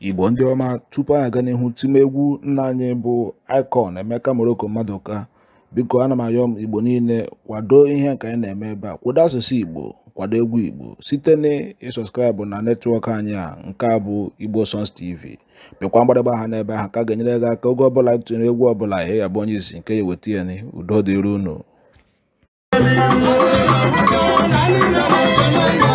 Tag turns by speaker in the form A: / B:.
A: igbo ndị ọma tupu anyị aga n'ihu time egwu nna anyị bụ icon emeka mmadụ mmadụka biko ana m ayọ m igbo niile kwado ihe nke anyị na-eme ebe a kwado asụsụ igbo kwado egwu igbo site na ịsọskraịbụ na netwọk anyị a nke a bụ igbo songs tv pịkwa mgbadagba aha n'ebe ahụ ka ga-enyere gị aka oge ọbụla tụnyere egwu ọbụla ihe ya bụ onye isi nke ya ihe ya ni udo dịrị unu